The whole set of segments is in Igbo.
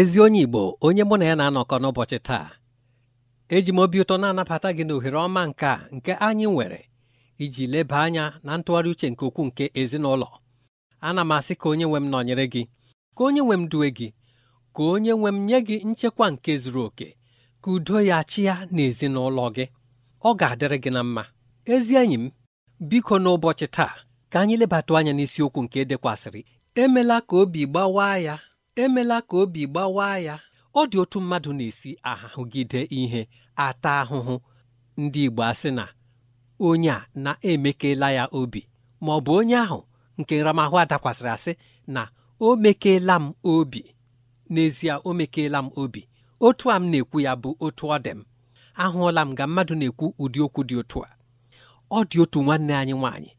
ezi onye Igbo onye mụ na ya na-anọkọ n'ụbọchị taa eji m obi ụtọ na-anabata gị n'ohere ọma nke a nke anyị nwere iji leba anya na ntụgharị uche nke ukwuu nke ezinụlọ ana m asị ka onye nwe m nọnyere gị ka onye nwe m duwe gị ka onye nwe m nye gị nchekwa nke zuru oke ka udo ya chịa na ezinụlọ gị ọ ga-adịrị gị na mma ezi enyi m biko n'ụbọchị taa ka anyị lebata anya n'isiokwu nke e dekwasịrị emela ka obi gbawa ya emela ka obi gbawaa ya ọ dị otu mmadụ na-esi ahụgide ihe ata ahụhụ ndị Igbo asị na onye a na-emekela ya obi ma ọ bụ onye ahụ nke nramahụ adakwasịrị asị na o mekela m obi n'ezie o mekela m obi otu a m na-ekwu ya bụ otu ọ dị m ahụọla m ga mmadụ na-ekwu ụdị okwu dị otu a ọ dị otu nwanne anyị nwaanyị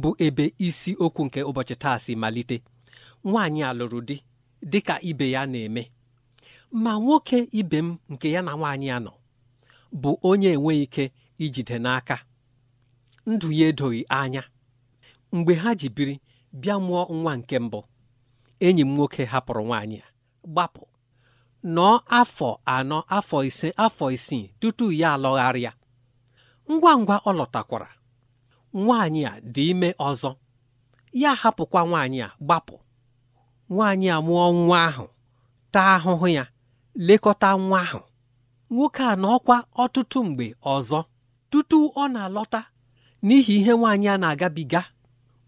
bụ ebe isi okwu nke ụbọchị taa si malite nwaanyị a lụrụ di Dịka ibe ya na-eme ma nwoke ibe m nke ya na nwaanyị ya nọ bụ onye enweghị ike ijide n'aka ndụ ya edoghị anya mgbe ha ji biri bịa mụọ nwa nke mbụ enyi m nwoke hapụrụ nwaanyị ya gbapụ nọọ afọ anọ afọ ise afọ isii tutu ya alọgharịa ngwa ngwa ọ lọtakwara nwaanyị a dị ime ọzọ ya hapụkwa nwaanyị a gbapụ nwaanyị a mụọ nwa ahụ taa ahụhụ ya lekọta nwa ahụ nwoke a na ọkwa ọtụtụ mgbe ọzọ tutu ọ na-alọta n'ihi ihe nwaanyị a na-agabiga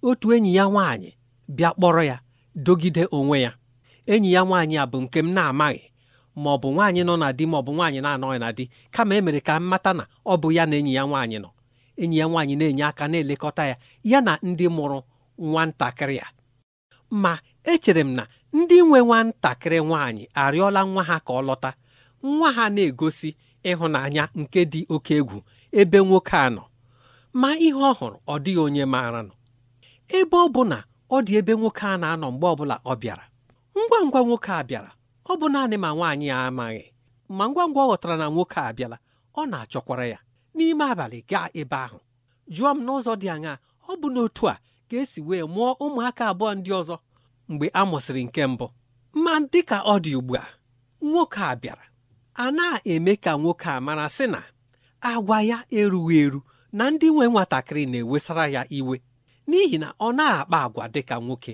otu enyi ya nwaanyị bịa kpọrọ ya dogide onwe ya enyi ya nwaanyị a bụ nke m na-amaghị ma ọ bụ nwaanyị nọ na di ma ọ bụ nwaanyị na-anọghị na di kama e mere ka m mata na ọ bụ ya na enyi ya nwaanyị nọ enyi ya nwaanyị na-enye aka na-elekọta ya ya na ndị mụrụ ntakịrị ya ma echere m na ndị nwe nwantakịrị nwanyị arịọla nwa ha ka ọ lọta nwa ha na-egosi ịhụnanya nke dị oke egwu ebe nwoke a nọ ma ihe ọ hụrụ ọ dịghị onye maara nọ ebe ọ bụ na ọ dị ebe nwoke a na-anọ mgbe ọbụla ọ bịara ngwa ngwa nwoke a bịara ọ bụ naanị ma nwaanyị ya amaghị ma ngwa ngwa ọ ghọtara na nwoke a abịala ọ na-achọkwara ya n'ime abalị gaa ebe ahụ jụọ m n'ụzọ dị aṅaa ọ bụ n'otu a ka esi wee mụọ ụmụaka abụọ ndị ọzọ mgbe a mụsịrị nke mbụ ma dịka ọ dị ugbu a nwoke a bịara a na-eme ka nwoke a mara sị na agwa ya erughị eru na ndị nwe nwatakịrị na-ewesara ya iwe n'ihi na ọ na-akpa agwa dịka nwoke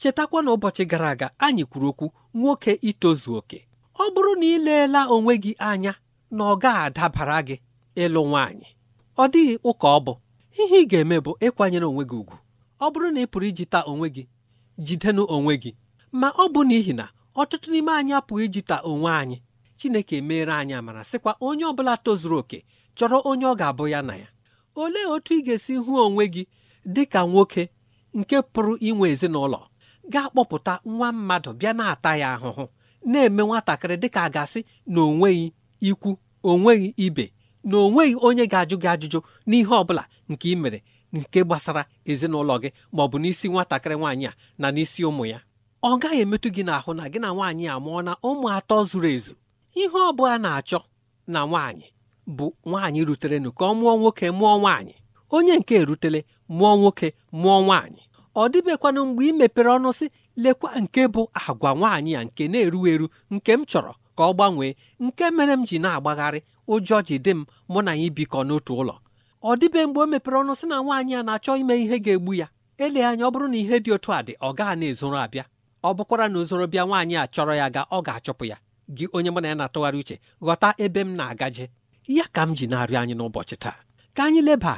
chetakwa na ụbọchị gara aga anyị kwuru okwu nwoke itozu oke ọ bụrụ na ị leela onwe gị anya na ọ ga-adabara gị ịlụ nwaanyị ọ dịghị ụka ọ bụ ihe ị ga-eme bụ ịkwanyere onwe gị ugwu ọ bụrụ na ị pụrụ ijita onwe gị jidenu onwe gị ma ọ bụ n'ihi na ọtụtụ n'ime anyị apụghị ijita onwe anyị Chineke meere anyị amara sịkwa onye ọ bụla tozuru okè chọrọ onye ọ ga-abụ ya na ya olee otu ị ga-esi hụ onwe gị dị ka nwoke nke pụrụ inwe ezinụlọ ga-akpọpụta nwa mmadụ bịa na-ata ya ahụhụ na-eme nwatakịrị dịka a ga-asị na onweghị ikwu onweghị ibe na onweghị onye ga-ajụ gị ajụjụ n'ihe ọ bụla nke ị mere nke gbasara ezinụlọ gị ma ọ bụ n'isi nwatakịrị nwaanyị a na n'isi ụmụ ya ọ gaghị emetụ gị n'ahụ na gị na nwaanyị a mụọ na ụmụ atọ zuru ezu ihe ọ bụla na-achọ na nwaanyị bụ nwaanyị ruterenụ ka ọ mụọ nwoke mụọ nwaanyị onye nke e rutele mụọ nwoke mụọ nwaanyị ọ dịbekwanụ mgbe ị mepere ọnụ sị lekwa nke bụ agwa nwaanyị a nke na-eru eru nke m chọrọ ka ọ gbanwee nke mere m ji na-agbagharị ụjọ ji dị m mụ na ya ibikọ n'otu ụlọ ọ dịbe mgbe o mepere ọnụ sị na nwaanyị a na-achọ ime ihe ga-egbu ya ele anya ọ bụrụ na ihe dị otu a dị ọ gaghị na-ezoro abịa ọ bụkwara na ozoro bịa nwaanyị a chọrọ ya ga ọ ga-achụpụ ya gị onye mụ na ya na-atụgharị uche ghọta ebe m na-agaje ya ka m ji na-arịọ anyị n'ụbọchị taa ka anyị leba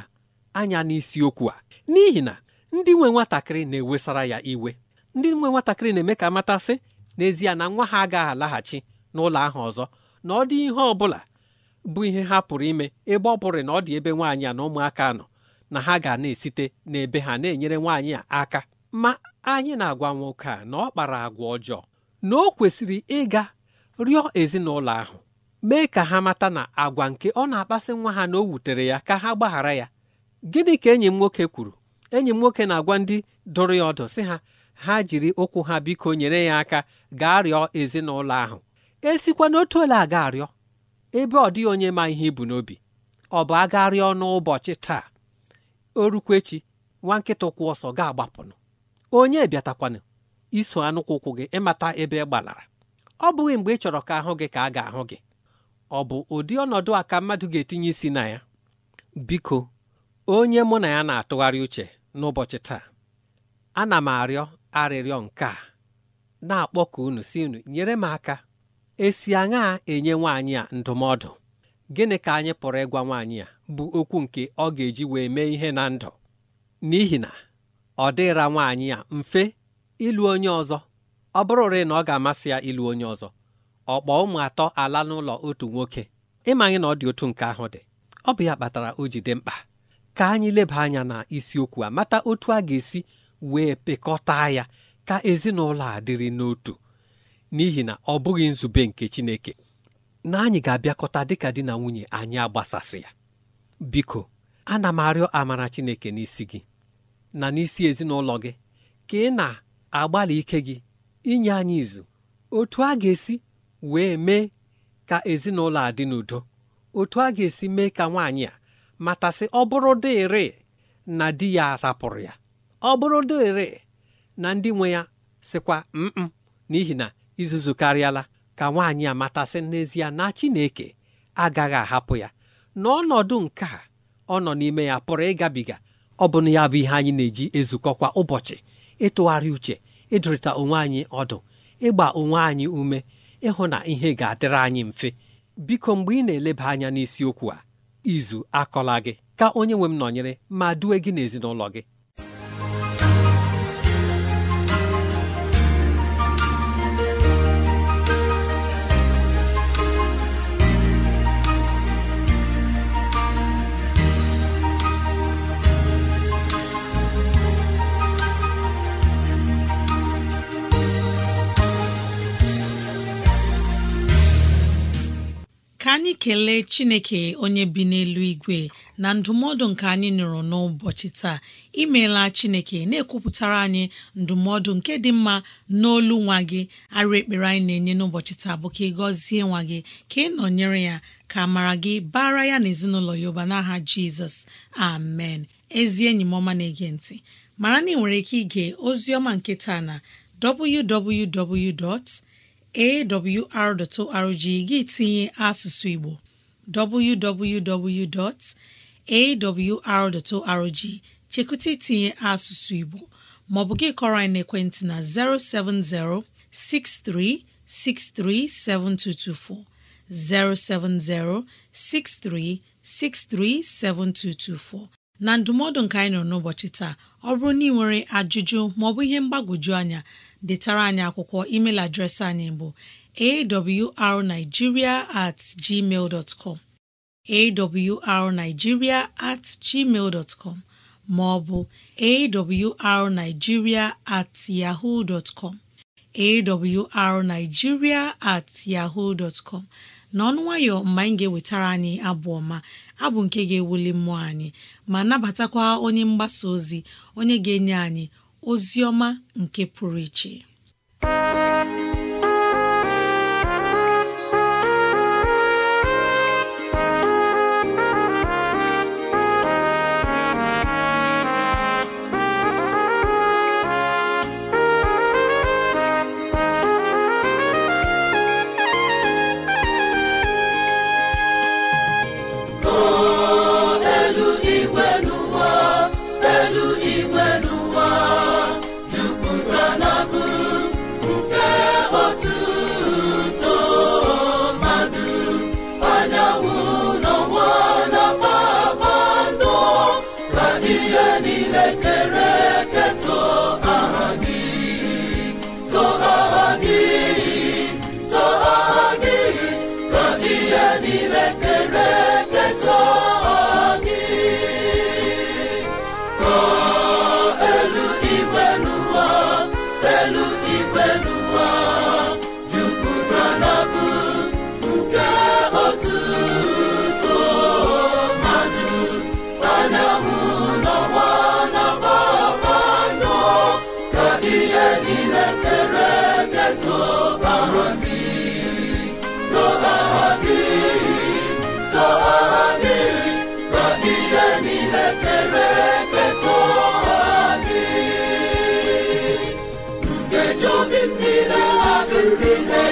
anya n'isiokwu a n'ihi na ndị nwe nwatakịrị na-ewesara ya iwe ndị nwe nwatakịrị na-eme ka amatasị n'ezie na nwa ha agaghị alaghachi n'ụlọ ahụ ọzọ na ọ dị ihe ọ bụla bụ ihe ha pụrụ ime ebe ọ bụrụ na ọ dị ebe nwaanyị a na ụmụaka nọ na ha ga na-esite n'ebe ha na-enyere nwaanyị a aka ma anyị na-agwa nwoke a na ọ kpara agwa ọjọọ na o kwesịrị ịga rịọ ezinụlọ ahụ mee ka ha mata na agwa nke ọ na-akpasị nwa ha na o wutere ya ka ha gbaghara ya gịnị ka enyi m nwoke kwuru enyi m nwoke na-agwa ndị dụrụ ya ọdụ sị ha ha jiri ụkwụ ha biko nyere ya aka gaa rịọ ezinụlọ ahụ esikwa n'otu ole aga arịọ ebe ọ dịghị onye ma ihe ibu n'obi ọ bụ agharịa ọnụ ụbọchị taa orukwechi nwa nkịta ụkwụ ọsọ ga-agbapụnụ onye bịatakwanụ iso anụkwụ ụkwụ gị ịmata ebe ị e gbalara ọ bụghị mgbe ị chọrọ ka ahụ gị ka a ga-ahụ gị ọ bụ ụdị ọnọdụ a ka mmadụ ga-etinye isi na ya biko onye mụ na ya na-atụgharị uche n'ụbọchị taa ana m arịọ arịrịọ nke a na-akpọ ka unu si unu nyere m aka esi aṅa enye nwaanyị a ndụmọdụ gịnị ka anyị pụrụ ịgwa nwaanyị a bụ okwu nke ọ ga-eji wee mee ihe na ndụ n'ihi na ọ dịra nwaanyị a mfe ịlụ onye ọzọ ọ bụrụrị na ọ ga-amasị ya ịlụ onye ọzọ kpọọ ụmụ atọ ala n'ụlọ otu nwoke ịmanye na ọ dị otu nke ahụ dị ọ bụ ya kpatara o jide mkpa ka anyị leba anya na isiokwu a mata otu a ga-esi wee pịkọta ya ka ezinụlọ a dịrị n'otu n'ihi na ọ bụghị nzube nke Chineke na anyị ga-abịakọta dịka di na nwunye anyị agbasasị ya biko ana m arịọ amara Chineke n'isi gị na n'isi ezinụlọ gị ka ị na-agbalị ike gị inye anyị izu otu a ga-esi wee mee ka ezinụlọ a dị n'udo otu a ga-esi mee ka nwaanyị a matasị ọ bụrụ na di ya rapụrụ ya ọ bụrụ na ndị nwe ya sịkwa mm n'ihi na izuzu karịala ka nwaanyị a matasị n'ezie na Chineke agaghị ahapụ ya n'ọnọdụ nke a ọ nọ n'ime ya pụrụ ịgabiga ọ bụna ya bụ ihe anyị na-eji ezukọ kwa ụbọchị ịtụgharị uche ịdụrịta onwe anyị ọdụ ịgba onwe anyị ume ịhụ na ihe ga-adịrị anyị mfe biko mgbe ị na-eleba anya n'isiokwu a izu akọla gị ka onye nwe m nọnyere ma due gị n'ezinụlọ gị na-ekele Chineke onye bi n'elu igwe na ndụmọdụ nke anyị nụrụ n'ụbọchị taa imeela Chineke na-ekwupụtara anyị ndụmọdụ nke dị mma n'olu nwa gị arụ ekpere anyị na-enye n'ụbọchị taa bụ ka ị gọzie nwa gị ka ị nọnyere ya ka mara gị bara ya na ezinụlọ ya ụba n'aha Jizọs amen ezi enyi m ọma na-ege ntị mara na ị nwere ike ige ozi ọma nke taa na www. awr.org gị tinye asụsụ Igbo www.awr.org chekụta itinye asụsụ Igbo maọbụ gị kọrọ anyị n'ekwentị na 070 6363 7224 070 6363 7224 na ndụmọdụ nke anyị nọ n'ụbọchị taa ọ bụrụ na ị nwere ajụjụ maọbụ ihe mgbagwoju anya detara anyị akwụkwọ email adreesị anyị bụ arigiria at com at com maọbụ arigiria at yahoo com at yahoo com n'ọnụ nwayọ mgbe anyị ga-ewetara anyị abụ ọma abụ nke ga-ewuli mmụọ anyị ma nabatakwa onye mgbasa ozi onye ga-enye anyị ozi ọma nke pụrụ iche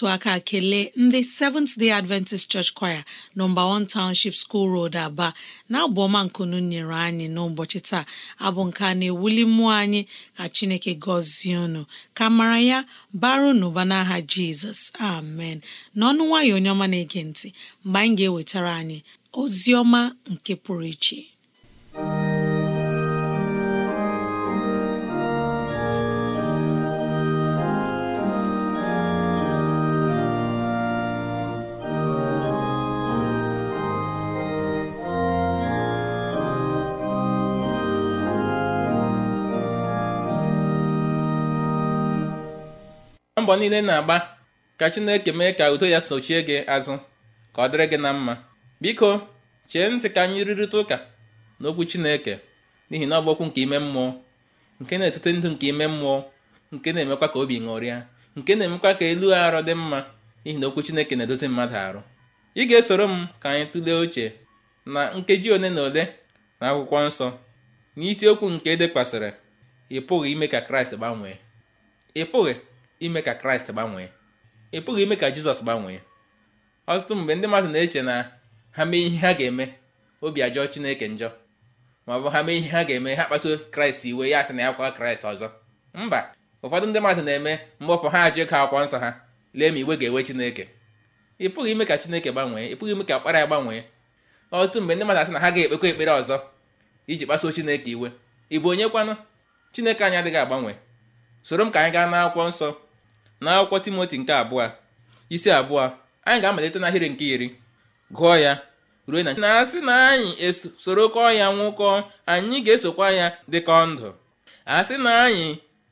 otu aka kelee ndị Seventh Day Adventist Church Choir nọmba 1 Township School Road Aba na-abụ ọma nkunu nyere anyị n'ụbọchị taa abụ nke na-ewuli mmụọ anyị ka Chineke gọzie unu ka mara ya baru n'ụba n'aha Jizọs amen n'ọnụ nwayọ onye ọma na-ege ntị mgbe anyị ga-ewetara anyị ozi ọma nke pụrụ iche mbọ niile na-agba ka Chineke mee ka udo ya sochie gị azụ ka ọ dịrị gị na mma biko chee ntị ka anyị rụrịta ụka n'okwu Chineke n'ihi na ọ bụ okwu nke ime mmụọ nke na-etute ndụ nke ime mmụọ nke na-emekwa ka obi ṅụrịa nke na-emekwa ka elu arụ dị mma n'ihi na okwu Chineke na-edozi mmadụ arụ ị ga-esoro m ka anyị tụlee oche na nkeji ole na ole na akwụkwọ nsọ n'isiokwu nke e dekwasịrị ị pụghị ime ka Kraịst gbanwee ị pụghị ime ka kraịst gbanwee ị pụghị ime ka jizọs gbanwee ọtụtụ mgbe ndị mmadụ na-eche na ha mee ihe ha ga-eme obi ajọọ chineke njọ ma ọ bụ ha mee ihe ha ga-eme ha kpasuo kraịst iwe ya asị na ya kwa kraịst ọzọ mba ụfọdụ ndị mmadụ na-eme mgbọpụ ha ajụ ka akwụkwọ nsọ ha lee ma iwe ga-ewe chineke ị pụghị ime ka chineke gbanwee ị pụghị ime ka akpara ya gbanwee ọtụtụ mgbe ndị mmadụ asị na ha ga-ekpekwa ekpere ọzọ iji kpasuo chineke iwe ị bụ onye kwanụ chineke anyị adịghị agbanwe soro m ka anyị gaa n'akwụkwọ nsọ n'akwụkwọ timoti nke abụọ isi abụọ anyị ga-amalite n'ahịrị nke iri gụọ ya ruo na na-asị na anyị esorokọ ya nwụkọ anyị ga-esokwa ya dịka ndụ asị na anyị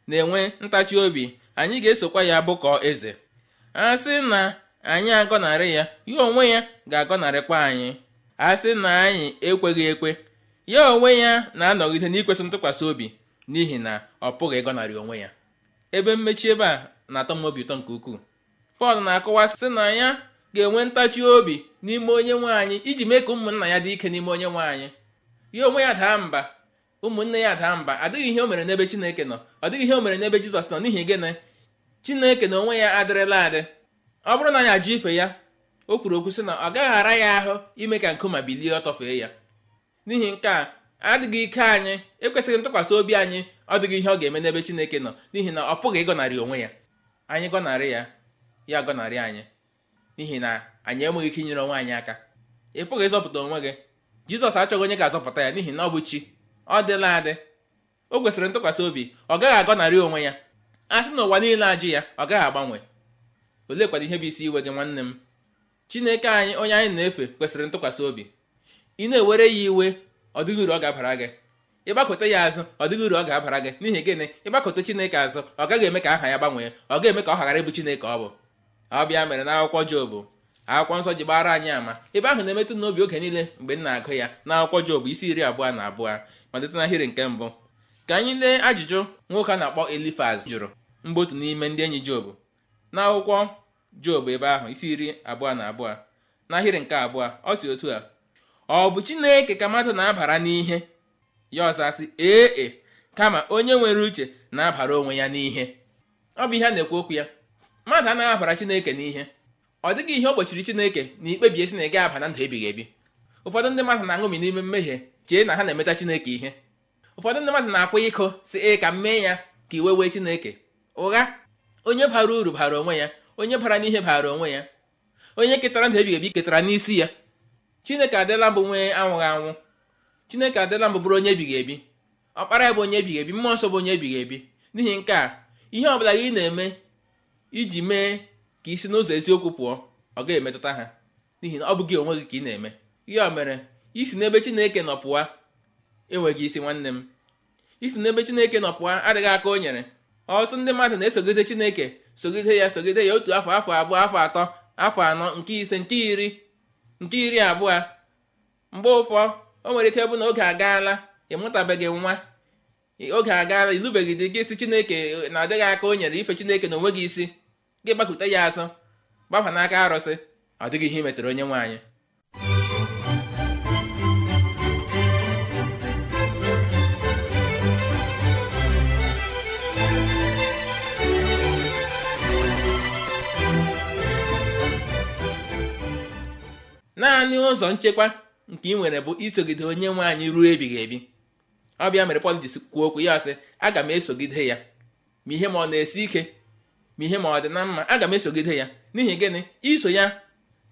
na-enwe ntachi obi anyị ga-esokwa ya bụkọ eze asị na anyị agọnarị ya ya onwe ya ga-agọnarịkwa anyị asị na anyị ekweghị ekwe ya onwe ya na-anọgide n'ikwesị ntụkwasị obi n'ihi na ọ pụghị ịgọnarị onwe ya ebe mmechi ebe a na-atọ m obi ụtọ nke ukwuu Pọl na-akọwa sị na ya ga-enwe ntachi obi n'ime onye nwaanyị iji mee ka ụmụnna ya dị ike n'ime onye nwaanyị ya onwe ya daa mba ụmụnne ya daa mba adịghị ihe o mere n'ebe Chineke nọ ọ dịghị ihe o mere n'ebe Jizọs nọ n'ihi gịnị Chineke na onwe ya adịrịla adị ọ bụrụ na anyị ajụ ife ya o kwuru okwu sị na ọ gaghị ara ya ahụ ime ka nkuma bilie ọ tọfee ya n'ihi nke a adịghị ike anyị ekwesịghị ntụkwasị obi anyị ọ dịghị ihe ọ ga-eme n'ebe Chineke nọ n'ihi na ọ pụghị ịgọnarị onwe ya anyị gọnarị ya ya gọnarị anyị n'ihi na anyị enweghị ike inyere onwe anyị aka ị pụghị ịzọpụta onwe gị jizọs achọghị onye ga-azọpụta ya n'ihi na ọ bụ chi ọ dịla adị o kwesịrị ntụkwasị obi ọ gaghị agọnarị onwe ya a sị na ụwa niile ajụ ya ọ gaghị agbanwe oleekwana ihe bụ isi iwe gị nwanne m chineke anyị onye anyị na-efe kwesịrị ntụkwasị obi ị na-ewere ya iwe ọ dịghị uru ọ ga-abara gị ịgbakọta ya azụ ọ dịghị uru ọ ga-abara gị n'ihi gịnị ịgbakọta chineke azụ ọ gaghị eme ka aha ya gbanwee ọ ga-eme ka ọ ghara ịbụ chineke ọ bụ ọ bịa mere na akwụkwọ jobu akwụkwọ nsọ ji gbara anyị ama ebe ahụ na-emetụ n'obi oge niile mgbe m na-agụ ya na akwụkwọ jobu isi iri abụọ na abụọ malite n'ahịrị nke mbụ ka anyị lee ajụjụ nwoke a na-akpọ elifaz jụrụ mgbe otu n'ime ndị enyi jobu na akwụkwọ jobu ebe ahụ isi iri abụọ na abụọ n'ahịrị nke abụọ ọ si otu a ọ bụ chineke ka mmadụ na-abara n'ihe ya ọzasị ee e, kama onye nwere uche na-abara onwe ya n'ihe ọ bụ ihe a na-ekwu okwu ya mmadụ anaghị abara chineke n'ihe ọ dịghị ihe o gbochiri chineke na ikpebie si na ị ga-aba na ndụ ebighị ebi ụfọdụ ndị mmadụ na-aṅụmi n'ime mmehie chee na ha na-emeta chineke ihe ụfọdụ ndị mmadụ na-akwụ iko si ị ka m mee ya ka iwe wee chineke ụgha onye bara uru bara onwe ya onye bara n'ihe bara onwe ya onye ketara ndụ ebighị ebi ketara n'isi ya chineke adịla bụ nwee anwụghị anwụ chineke adịla mbụ bụrụ onye ebighị ebi ọkpara ya bụ onye ebighị ebi mmụọ nsọ bụ onye ebighị ebi n'ihi nke a ihe ọbụla gị na-eme iji mee ka isi n'ụzọ eziokwu pụọ ọ ga-emetụta ha n'ihi na ọ bụghị onwe gị ka ị na-eme ọ mere isi n'ebe chineke nọ enweghị isi nwanne m isi n'ebe chineke nọ pụọ adịghị aka o nyere ọtụtụ ndị mmadụ na-esogide chineke sogide ya sogide ya otu afọ afọ abụọ afọ atọ afọ anọ nke ise nke iri nke iri abụọ mgbe ụfọ o nwere ike bụ na oge agaala mụtabeghị nwa oge agaala ilubeghị dị gị si chineke na-adịghị aka o nyere ife chineke na onwe gị isi gị gbakute ya azụ gbafa n'aka arụsị ọ dịghị ihe imetere onye nwaanyị naanị ụzọ nchekwa nke ị nwere bụ isogide onye nwe anyị ruo ebighị ebi ọ bịa mere Pọl ji kwuo okwu ya sị aga m esogide ya ma ihe ma ọ na-esi ike ma ihe ma ọ dị na mma aga m esogide ya n'ihi gịnị iso ya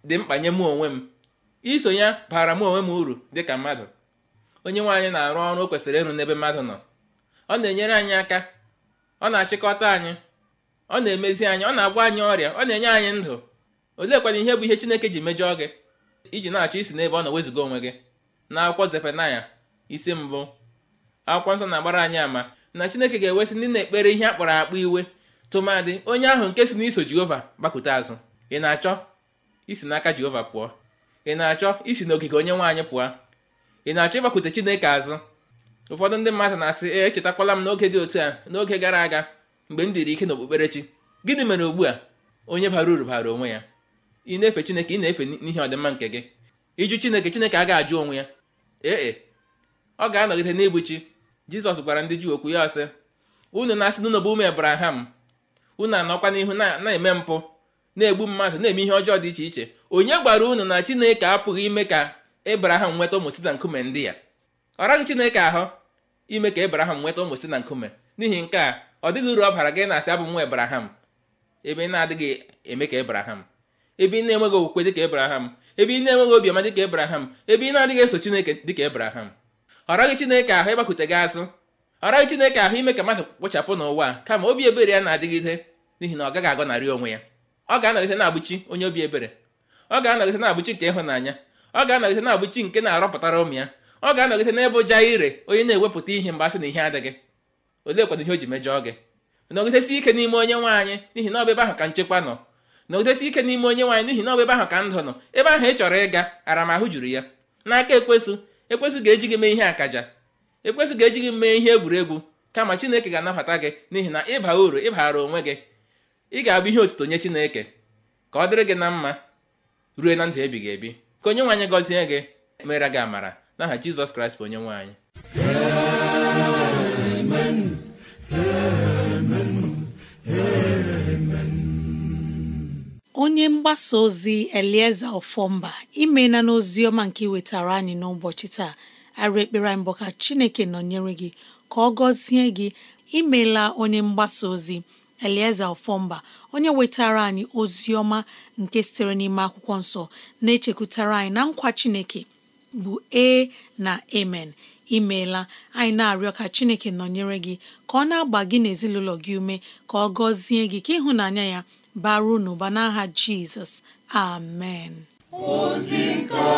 dị mkpa nye mụ onwe m iso ya bara m onwe m uru dị ka mmadụ onye nwaanyị na-arụ ọrụ o kwesịrị ịrụ n'ebe mmadụ nọ ọ na-enyere anyị aka ọ na-achịkọta anyị ọ na-emezi anyị ọ na-agwa anyị ọrịa ọ na-enye anyị ndụ oleekwana ihe bụ ihe Chineke ji mejọọ gị iji na-achọ isi n'ebe ọ na wezuga onwe gị na akwụkwọ zefenaya isi mbụ akwụkwọ nsọ na-agbara anyị ama na Chineke ga-ewesị ndị na-ekpere ihe akpọrọ akpọ iwe tụmadị onye ahụ nke si n'iso Jehova gbakwute azụ ị na-achọ isi n'aka Jehova pụọ ị na-achọ isi n'ogige onye nwaanyị pụọ ị na-achọ ịgbakwute Chineke azụ ụfọdụ ndị mmadụ na-asị e echetakwala m n'oge dị otu a n'oge gara aga mgbe m dịrị ike n'okpukperechi gịnị mere ugbu a onye bara uru bara onwe ya ị na-efe chineke ị na-efe n'ihi ọdịmma nke gị ịjụ chineke chineke agaghị ajụ onwe ya ee e, ọ ga-anọgide na chi jizọs gwara ndị juu okwu ya ọsị unu na-asị n'ụlọ bụ ụmụ ebraham unu anọkwa n'ihu na-eme mpụ na-egbu mmadụ na-eme ihe ọjọọ dị iche iche onye gbara unu na chineke apụghị ime ka abraham nweta ụmụ site na nkume ndị ya ọ raghị chineke ahụ ime ka abraham nweta ụmụ site na nkume n'ihi nke a ọ dịghị uru ọ bara gị na-asị abụ nwa abraham ebe ị na-adịghị eme ka ebraham ebe ị na-enweghị okwukwe dịka ebraham ebe ị na-enweghị obiọma dịka ebraham ebe ị na-adịghị eso chineke dịka ebraham ọ chineke ahụ ịgbakute gị azụ ọ chineke ahụ ime ka mmadụ kpochapụ n'ụwa kama obi ebere ya na-adịgide n'ihi na ọ gaghị agọnarị onwe ya ọ ga-anọgide na-abụchi onye obi ebere ọ ga-anọgide na-abụchi nke ịhụnanya ọ ga-anọgide na-abụchi nke na-arọpụtara ụmụ ya ọ ga-anọgide n'ebe ụja ire onye na-ewepụta ihe mgbe asị na ihe adịghị oleekwana ihe o ji mejọọ gị nọgidesi ike n'ime onye nwaanyị n'ihi na ọ bụ ebe ahụ ka nchekwa nọ na udesi ike n'ime onye nwaanyị n'ihi na ọ bụ ebe ahụ ka ndụ nọ ebe ahụ ị chọrọ ịga aramahụ juru ya n'aka ekwesụ ekwesụ ga-eji gị mee ihe akaja ekwesụ ga-eji gị mee ihe egwuregwu kama chineke ga-anabata gị n'ihi na ịba uru ịbara onwe gị ị ga-abụ ihe otuto nye chineke ka ọ dịrị gị na mma ruo na ndụ ebighị ebi ka onye nwaanyị gọzie gị mere gị amara n'aha jizọs kraịst bụ onye nwaanyị onye mgbasa ozi elieze ofomba imena n'ozi ọma nke iwetara anyị n'ụbọchị taa arị ekpere mbụ ka chineke nọnyere gị ka ọ gọzie gị imela onye mgbasa ozi elieze ofomba onye wetara anyị ozi ọma nke sitere n'ime akwụkwọ nsọ na-echekwutara anyị na nkwa chineke bụ e na amen imeela anyị na-arịọ ka chineke nọnyere gị ka ọ na-agba gị n'ezinụlọ gị ume ka ọ gọzie gị ka ịhụnanya ya bara unu ba n'aha amen ozi nke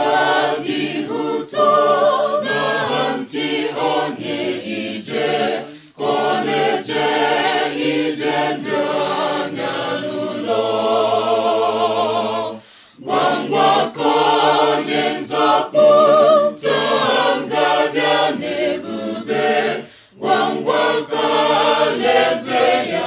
dị ụtọ na ntị onye ije ka ije doro anya n'ụlọ gbamgbakọ onye nzọpụta n'ebube gbamgbakọ alaeze ya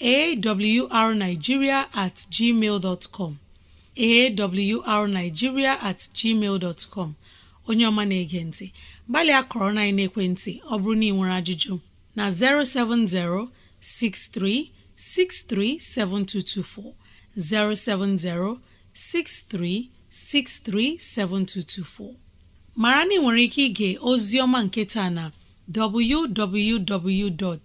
A w r Naijiria at com A w na-ege ntị. gbalịa kọrọ na-ekwentị, ọ bụrụ na ị nwere ajụjụ, na-07063 637224 070 6363 7224. Maara na ị nwere ike ịga ozi ọma nke taa na www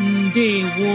ndewo